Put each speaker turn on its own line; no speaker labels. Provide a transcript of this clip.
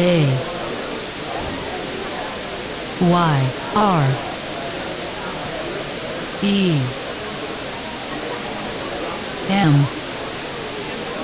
A Y R E M